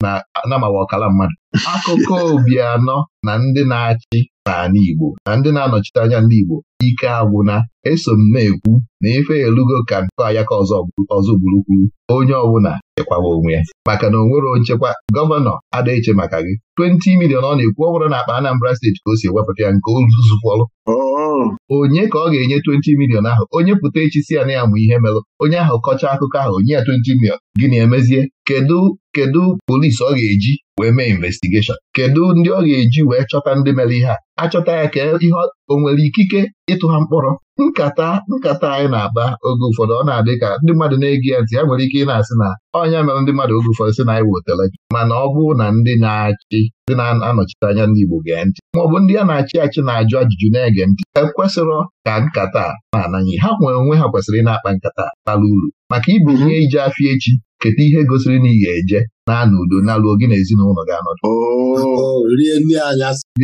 na nama wa ọkala mmadụ akụkọ Obianọ na ndị na-achị n'ala Igbo na ndị na-anọchite anya ndị Igbo ike agwụna eso m na-ekwu na ife elugo ka nke ayaka ọzọ gburu gburukwuru onye ọbụla chekwawa onwe ya maka na onwere nwere nchekwa gọvanọ adịghịche maka gị 20 milion ọ na-ekwu ọ bụrụ na akpa Anambra steeti ka o si ewepụta ya nke ozuzufọlụ oh. onye ka ọ ga-enye 20 milion ahụ onye pụta echi si ya na ya mụ ihe melụ onye ahụ kọchaa akụkọ ahụ onye ya 20 milion na emezie kedu kedu polisi ọ ga-eji wee mee investigeshọn kedu ndị ọ ga-eji wee chọta ndị mere ihe a achọta ya ka ihe o nwere ikike ịtụ ha mkpọrọ nkata nkata anyị na-akpa oge ụfọdụ ọ na-adị ka ndị mmadụ na-ege ya ntị ya nwere ike ị na-asị na ọnya mere ndị mmadụ oge ụfọdụ sị na anyị wotele gị mana ọ bụrụ na ndị na-achị ndị na-anọchite anya ndị Igbo gee ntị maọbụ ndị a na-achị achị na-ajụ ajụjụ na-ege ntị ekwesịrọ ka nkata na-anaghị ha nwere onwe ha kwesịrị ịna-akpa nkata n'ala uru maka ibu ihe ije afọ echi keta ihe gosiri na ị ga-eje na-anọ udo na-alụọ gị na ezinụlọ ga-anọdụ oh, rie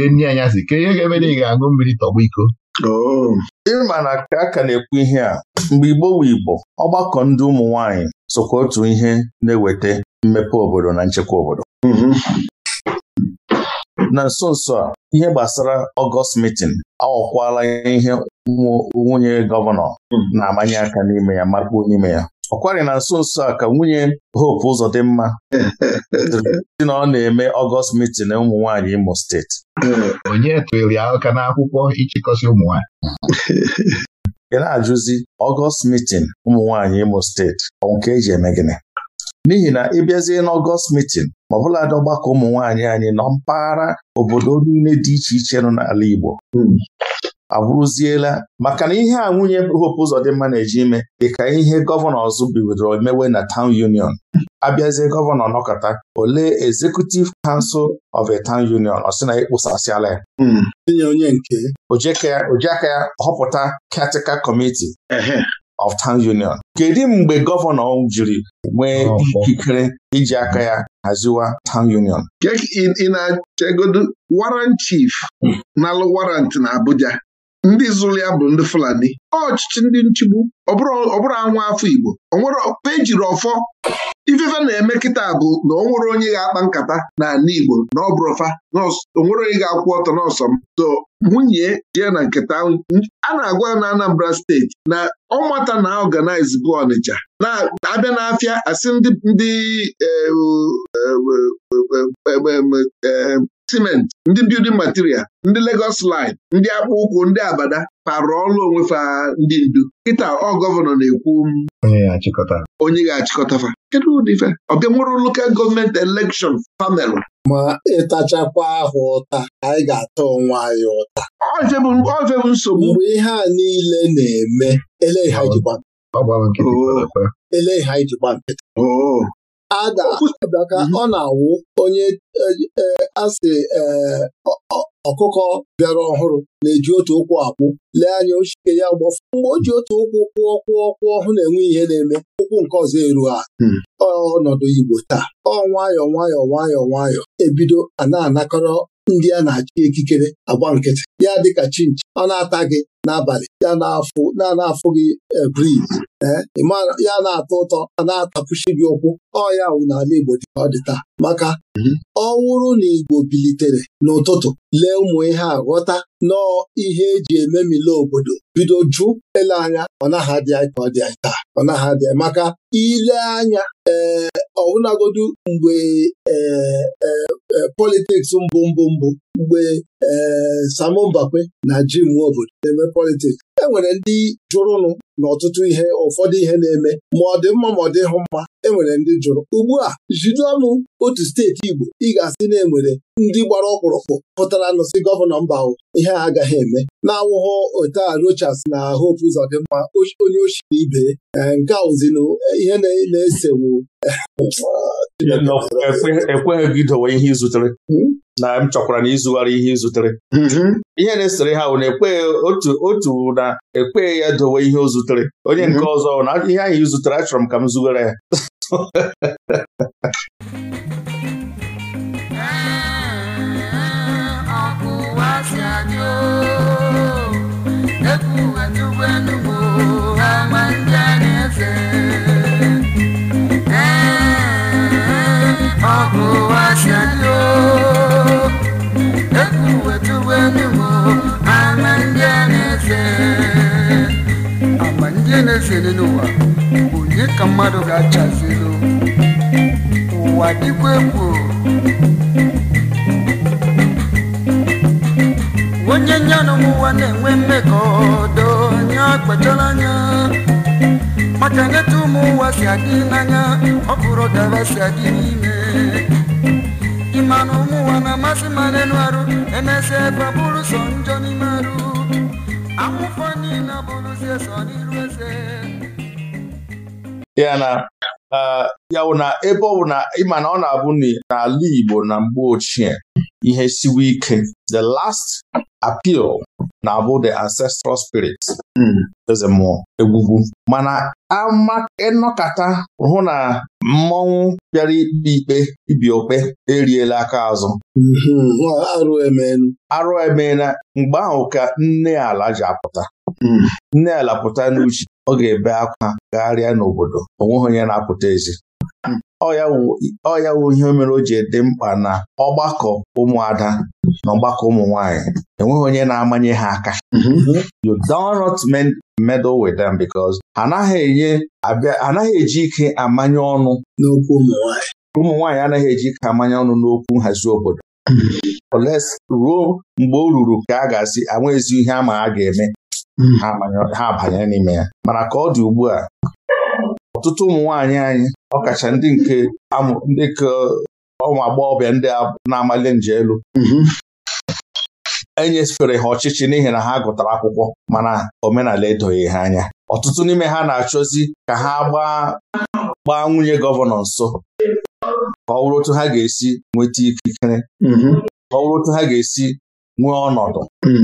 nri anyasị ka ihe ga-eme na ị ga-aṅụ mmiri tọgbọ iko oh. ịma na ka a ka na-ekwu ihe a mgbe Igbo wu Igbo ọgbakọ ndị ụmụ nwaanyị sokwa otu ihe na-eweta mmepe obodo na nchekwa obodo mhm. na nso nso a ihe gbasara ọgọst mitin aghọkwala ihe nwunye gọvanọ hmm. na-amanye aka n'ime ya makpuo n'ime ya ọ na nso nso a ka nwunye Hope Uzodimma dị (laughs) na ọ na-eme ọgọst mitin ụmụ nwanyị Imo steeti (laughs) onye tụrụ aka n'akwụkwọ ịchịkọsị ụmụ ị na-ajụzi ọgọst mitin ụmụ Imo steeti ọ nke eji eme gịnị n'ihi na ị bịazie n'ọgọst mitin ma ọbụladị ọgbakọ ụmụ nwaanyị anyị nọ mpaghara obodo niile dị iche iche nọ n'ala Igbo hmm. abụrụziela maka na ihe a nwunye Hope mma na-eji ime dịka ihe gọvanọ ọzọ bidoro mewe na town union abịazie gọvanọ nọkọta olee executive council of a town union ọ sị na ịkpụsasịala ya hmm. onye nke ojiaka ya họpụta category committee of Town Union kedu mgbe gọvanọ jiri nwee ikikere iji aka ya haziwa Town Union ị na-achegodu warrant chief hmm. na warant na Abuja ndị zụrụ ya bụ ndị Fulani ọchịchị ndị nchigbu ọ bụrụ anwa afọ Igbo jiri ọfọ ifefe na-eme kịta bụ na ọ nwere onye ga-akpa nkata na ala Igbo na ọ bụrụfa o nwere onye ga-akwụ ọtọ n'ọsọ m to nwunye jee na nketa a na-agwa na Anambra steeti na ọmata na ọganaiz bụ Ọnịcha na-abịa n'afịa asị ndị eh, eh, eh, siment ndị building material ndị legos line ndị akpụ ụkwụ ndị abada kparụ ọrụ onwe fa ndị ndu kịta ọ gọvanọ na-ekwu mm, onye ga-achịkọta fa kedu ụdị fa ọbịa nwere lokal gọọmenti elekshọn famelu ma ịtachakwa ahụ ụta anyị ga-ata onwe anyị ụta ofe nsogbu mgbe ihe a niile na-eme ele ihe anyị ji gba nkịtị ada mhm. ọ na-awụ onye e, e, asị e, ọkụkọ bịara ọhụrụ na-eji otu ụkwụ akwụ lee anya ochike ya gbafụ mgbe o ji otu ụkwụ kwụọ kwụọ kwụọ hụ na-enwe ihe na-eme ụkwụ nke ọzọ eru ha hmm. ọnọdụ Igbo taa ọ nwayọọ nwayọọ nwayọọ nwayọọ ebido a na-anakọrọ ndị a na-achị ekikere agba nkịtị ya dịka chinchi ọ na-ata gị n'abalị ya na-afụ na gị eh, briz eh, ya na-atọ ụtọ a na-atapụchi gị ụkwụ ọya wụ n'ala Igbo dị ka ọ dị taa maka mhm. ọ na Igbo bilitere n'ụtụtụ lee ụmụ ihe a ghọta nọọ ihe eji ememile obodo bido jụ ele anya ọ naghị adị ka ọ dị anyị taa ọ maka ile anya ee eh, ọbụnagodu mgbe ee eh, eh, politiks mbụ mbụ mbụ mgbe ee Sam Mbakwe na Jim obodo na-eme politiks e nwere ndị jụrụnụ n'ọtụtụ ihe ụfọdụ ihe na-eme ma ọ dị mma ma ọ dịghị mma enwere ndị jụrụ ugbu a jide ọnụ otu steeti Igbo ị ga-asị na enwere ndị gbara ọkpụrụkpụ pụtara nụsị gọvanọ mba ahụ ihe a agaghị eme na-awụghọ ote Rochas na Hope Uzodimma onye ochiri ibe eh, nke a ụzinụ eh, ihe na-esewu ekweghị e gị dowe ihe izutere hmm? na m chọkwara na ịzụgharị ihe izutere mm-hmm. ihe na-esere ha bụ na e ekweghị otu otu na ekweghị ya dowe ihe o zutere onye nke mm-hmm. ọzọ na ihe ahụ izutere achọrọ m ka m zụgara ya (laughs) na-ezere n'ụwa onye ka mmadụ ga-achazelu ụwa dịkwa egwu onye nyanụ ụwa na-enwe mmekọ ọdọ onye akpachara anya maka neta ụmụ ụwa si adị n'anya ọ bụrụ si adị n'ime mmanụ ụmụ ụwa na-amasị ma n'elu arụ emesịa ebe bụrụ sọ njọ n'ime arụ Akwụkwọ niile si sọ n'iru eze ya na ya wụ na ebe ọ bụ na ịma na ọ na-abụ n'ala Igbo na mgbe ochie ihe siwe ike the last appeal na-abụ the ancestral spirit hmm. eze mmụọ egwugwu mana ịnọkata e hụ na mmọnwụ bịara ikpe ikpe ibi okpe eriela aka azụ hmm, arụ emeela mgbe ahụ ka nne ala ji apụta hmm. nne ala pụta n'uche ọ ga-ebe akwa gagharịa n'obodo o nweghị onye na-apụta ezi ọ wụ ihe mere o ji dị mkpa na ọgbakọ ụmụada na ọgbakọ ụmụ enweghị onye na-amanye ha aka mm-hmm. you don't with them because anaghị eji ike amanye ọnụ n'okwu ụmụ nwaanyị anaghị eji ike amanye ọnụ n'okwu nhazi obodo mm-hmm. ruo mgbe o ruru ka a ga-asị anwa ezi ihe ama a ga-eme mm-hmm. ha abanye n'ime ya mana ka ọ dị ugbu a ọtụtụ ụmụ nwaanyị anyị ọkacha ndị nke ndị ka ụmụ agbọghọbịa ndị na-amali nje elu mhm. enyefere ha ọchịchị n'ihi na ha gụtara akwụkwọ mana omenala edoghị ha anya ọtụtụ n'ime ha na-achọzi ka ha gbaa nwunye gọvanọ nso ka ọ bụrụ otu ha ga-esi nweta ikikere mhm. ka ọ bụrụ otu ha ga-esi nwee ọnọdụ mhm.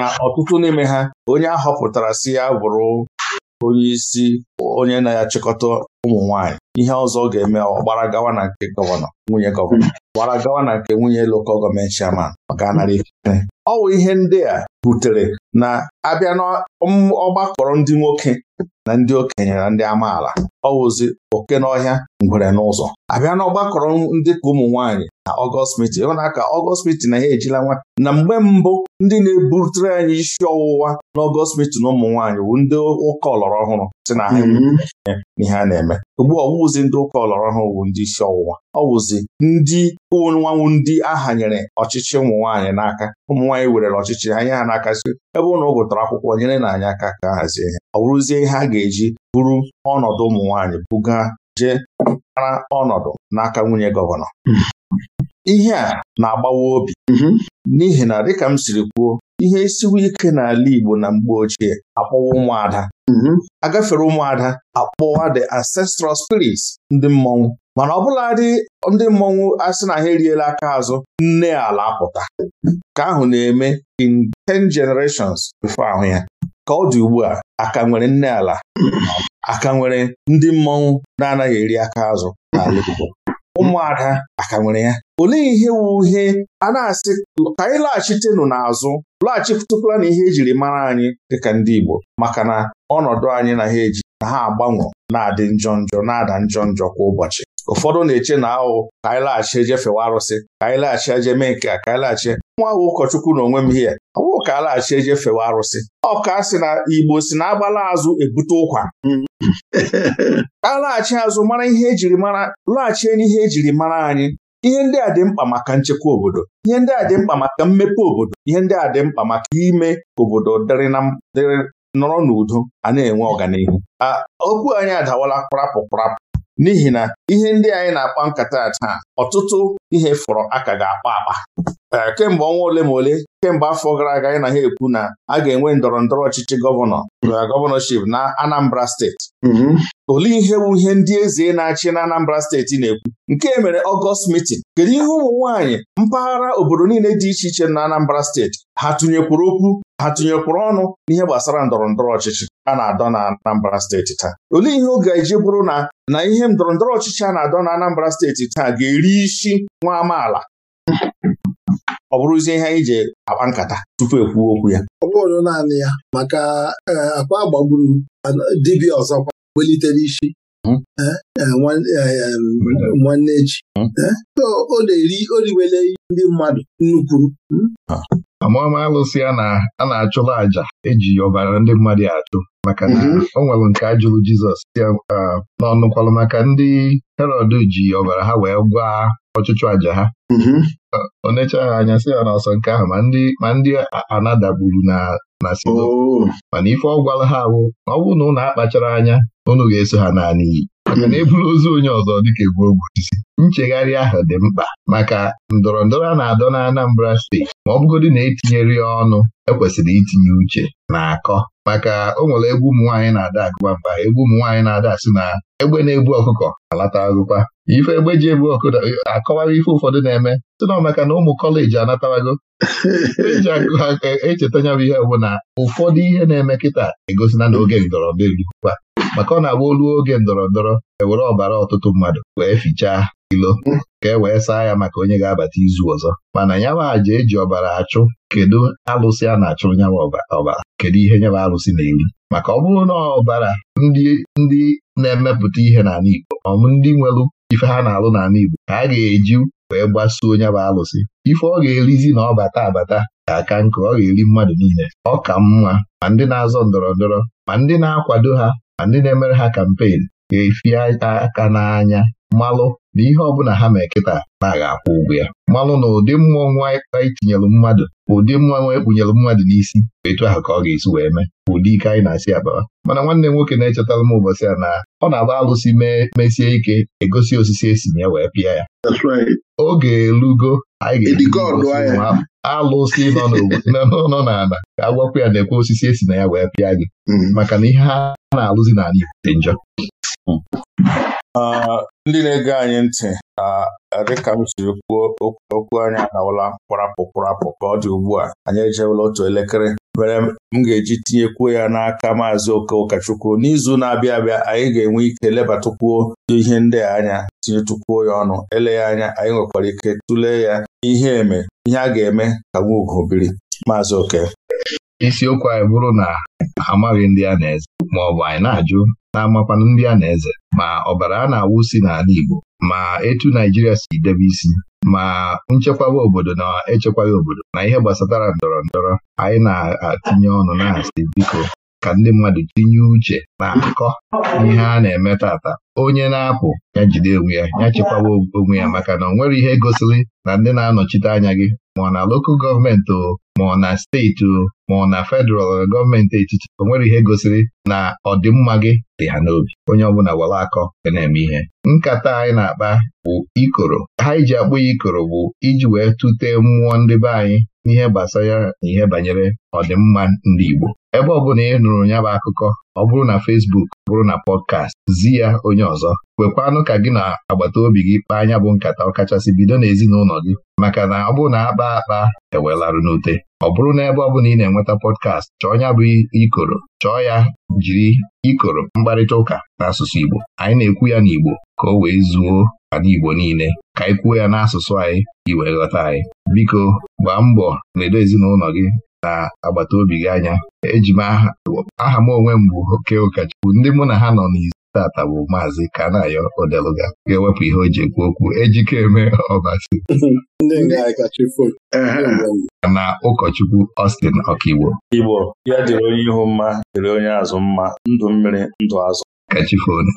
na ọtụtụ n'ime ha onye a họpụtara si ya bụrụ onye isi onye na-achịkọta ụmụ nwaanyị ihe ọzọ ga-eme ọ gbara gawa na nke gọvanọ nwunye gọvanọ hmm. gbara gawa na nke nwunye lokal gọọmenti chairman maka narị ife ọ bụ ihe ndị a butere na abịa n'ọgbakọrọ ndị nwoke na ndị okenye na ndị amaala ọ oke n'ọhịa ngwere n'ụzọ abịa n'ọgbakọrọ ndị ka ụmụ nwaanyị na ọgọst mitin ịhụ ka ọgọst mitin na ya ejila nwa na mgbe mbụ ndị na-ebutere anyị isi ọwụwa na n'ọgọst mitin ụmụ nwaanyị bụ ndị ụka ọlọrọ ọhụrụ si na ha hmm. a na-eme ugbu ọwụzi ndị ụka ọlọrọ ha owu ndị isi ọwụwa ọ wụzi ndị ụnwanwụ ndị aha nyere ọchịchị ụmụ nwaanyị n'aka ụmụ nwaanyị werere ọchịchị ha nye ha n'aka si ebe ụnụ gụtara akwụkwọ nyere na anyị aka ka hazie ihe ọ bụrụzie ihe a ga-eji bụrụ ọnọdụ ụmụ nwaanyị buga jee ara ọnọdụ n'aka nwunye gọvanọ hmm. ihe a na-agbawa obi hmm. n'ihi na dịka m siri kwuo ihe siwu ike n'ala Igbo na mgbe ochie akpọwa ụmụada mm-hmm. agafere ụmụada akpọwa the ancestral spirits ndị mmọnwụ mana ọbụladị ndị mmọnwụ asị na ha eriela aka azụ nne ala apụta ka ahụ na-eme in ten generations bifo ahụ ya ka ọ dị ugbu a aka nwere nne ala aka nwere ndị mmọnwụ na-anaghị eri aka azụ n'ala Igbo ụmụada aka nwere ya olee ihe wu ihe a na-asị ka anyị laghachitenụ n'azụ lọghachikwutukwala na ihe ejiri mara anyị dịka ndị Igbo maka na ọnọdụ anyị na ha eji na ha agbanwe na-adị njọ njọ na-ada njọ njọ kwa ụbọchị ụfọdụ na-eche na ahụ ka anyị laghachi eje arụsị ka anyị laghachi eje mee nke a ka anyị laghachi nwa ahụ ụkọchukwu na onwe m hie awụ ka a laghachi eje arụsị Ọka si na Igbo si na agbala azụ ebute ụkwa (laughs) a laghachi azụ mara ihe ejiri mara laghachie n'ihe ejiri mara anyị ihe ndị a dị mkpa maka nchekwa obodo ihe ndị a dị mkpa maka mmepe obodo ihe ndị a dị mkpa maka ime obodo dịrị nọrọ n'udo a na-enwe ọganihu okwu anyị adawala kparapụ n'ihi na ihe ndị anyị na-akpa nkata taa ọtụtụ ihe fọrọ aka ga-akpa akpa kemgbe ọnwa ole ma ole kemgbe afọ gara aga anyị na ha ekwu na a ga-enwe ndọrọ ndọrọ ọchịchị gọvanọ uh, gọvanọship na Anambra steeti mm-hmm. olee ihe bụ ihe ndị eze na-achị na Anambra steeti na-ekwu nke mere ọgọst mitin. kedu ihe ụmụ nwaanyị mpaghara obodo niile dị iche iche na Anambra steeti ha tụnyekwuru okwu ha tụnyekwuru ọnụ n'ihe gbasara ndọrọ ndọrọ ọchịchị a na-adọ na Anambra steeti taa olee ihe ọ ga-eji bụrụ na na ihe ndọrọ ndọrọ ọchịchị a na-adọ na Anambra steeti taa ga-eri isi nwa amaala ọ bụrụzie ihe anyị ji akpa nkata tupu ekwuo okwu ya ọ bụrụ naanị ya maka e, akpa gbagburu dibịa ọzọkwa welitere isi hmm. e, e, nwanne echi ọ hmm. na-eri oriwele ndị mmadụ nnukwu hmm. amama alụsị a na-achụla àjà eji ọbara ndị mmadụ achụ maka na mhm. o nwere nke a jụrụ Jizọs n'ọnụkwalụ maka ndị Herọd ji ọbara ha wee gwa ọchụchụ àjà ha mhm. onecha ha anya sị ha ọsọ nke ahụ ma ndị anadagburu na na oh. mana ife ọ gwara ha bụ na ọ bụrụ na ụnụ akpachara anya ụnụ ga-eso ha naanị maka na ozu onye ọzọ dịka egwu isi. nchegharị ahụ dị mkpa maka ndọrọ ndọrọ a na-adọ na Anambra steeti ma ọ bụgodị na etinyere ya ọnụ ekwesịrị itinye uche na akọ maka o nwere egwu ụmụ nwaanyị na-ada agụba mba egwu ụmụ nwaanyị na-ada asị na egbe na-ebu ọkụkọ alata agụkwa ife egbe ji ebu ọkụkọ akọwara ife ụfọdụ na-eme si na maka na ụmụ kọleji anatawago eji akụ aka e, e ihe bụ na ụfọdụ ihe na-eme kịta egosina na oge ndọrọ maka ọ na-agba oge ndọrọ ndọrọ ewere ọbara ọtụtụ mmadụ wee fichaa ilo ka e wee saa ya maka onye ga-abata izu ọzọ mana aja eji ọbara achụ kedu alụsị a na-achụ nyama ọbara kedu ihe nyama alụsị na-eri maka ọ bụrụ na ọbara ndị na-emepụta ihe n'ala Igbo ọmụ ndị nwere ife ha na-alụ n'ala Igbo ka a ga-eji wee gbasuo nyaba alụsị ife ọ ga-erizi na ọ bata abata ga-aka nke ọ ga-eri mmadụ niile ọ ka mma ma ndị na-azọ ndọrọ ndọrọ ma ndị na-akwado ha andị ndị na-emere ha kampen ga-efi aka n'anya malụ na ihe bụla ha mee kịta na-agha akwụ ụgwọ ya mmanụ na ụdị mmụọ nwa anyị tinyere mmadụ ụdị mmanụ ekpunyere mmadụ n'isi etu ahụ ka ọ ga-esi wee mee ụdị ike anyị na-asị akpara mana nwanne m nwoke na-echetara m ụbọchị a na ọ na-agba alụsị mesie ike egosi osisi esi ya wee pịa ya oge elugo anyị ga-eji alụsị (laughs) nọ n'ala ka a ya na-ekwe osisi esi na ya wee pịa gị mm-hmm. maka na ihe ha na-alụzi n'ala Igbo dị njọ ndị na-ege anyị ntị eh, dịka m siri kwuo okwu anyị adawala kwarapụ kwarapụ ka ọ dị ugbu a anyị ejewela otu elekere mere m ga-eji tinyekwuo ya n'aka maazị oke ụkọchukwu n'izu na-abịa abịa anyị ga-enwe ike lebatụkwuo ihe ndị anya tinyetụkwuo ya ọnụ eleghị anya anyị nwekwara ike tụlee ya ihe eme ihe a ga-eme ka nwa ugo biri maazị oke isiokwu anyị bụrụ na amaghị ndị a na-eze maọbụ anyị na-ajụ na-amakwanụ ndị a na-eze ma ọbara a na-awụsi n'ala Igbo ma etu Naijiria si debe isi ma nchekwawa obodo na echekwaghị obodo na ihe gbasatara ndọrọ ndọrọ anyị na-atinye ọnụ na-asị biko ka ndị mmadụ tinye uche na akụkọ ihe a na-eme tata onye na-apụ ya jide onwe ya ya chekwawa onwe ya maka na ọ nwere ihe gosiri na ndị na-anọchite anya gị ma na lokal gọọmenti o ma na steeti o ma na federal gọọmenti etiti o nwere ihe gosiri na ọdịmma gị dị ha n'obi onye ọbụla were akọ ga na-eme ihe nkata anyị na-akpa bụ ikoro ha iji e akpụ ya ikoro bụ iji wee tụtee mmụọ ndị be anyị n'ihe gbasara na ihe banyere ọdịmma ndị Igbo ebe ọ bụla ị nụrụ ya bụ akụkọ ọ bụrụ na fesbuk ọ bụrụ na pọdkast zi ya onye ọzọ kwekwanụ ka gị na agbata obi gị kpaa anya bụ nkata ọ kachasị bido n'ezinụlọ gị maka na ọ bụrụ na akpa akpa ewelarụ n'ute ọ bụrụ na ebe ọ bụla ị na-enweta pọdkast chọọ ya bụ ikoro chọọ ya jiri ikoro mkparịta ụka n'asụsụ Igbo anyị na-ekwu ya n'Igbo ka o wee zuo ana Igbo niile ka anyị kwuo ya n'asụsụ anyị iwee ghọta anyị biko gbaa mbọ ledo ezinụlọ gị na agbata obi gị anya eji m aha m onwe m bụ oke ụkọchukwu ndị mụ na ha nọ n'izu tata bụ maazị Kanayo Odeluga ga-ewepụ ihe o ji ekwu okwu ejikeme ọbasi na ụkọchukwu Austin ọkaigbo Igbo ya dịrị onye ihu mma dịrị onye azụ mma ndụ mmiri ndụ azụ kachifonu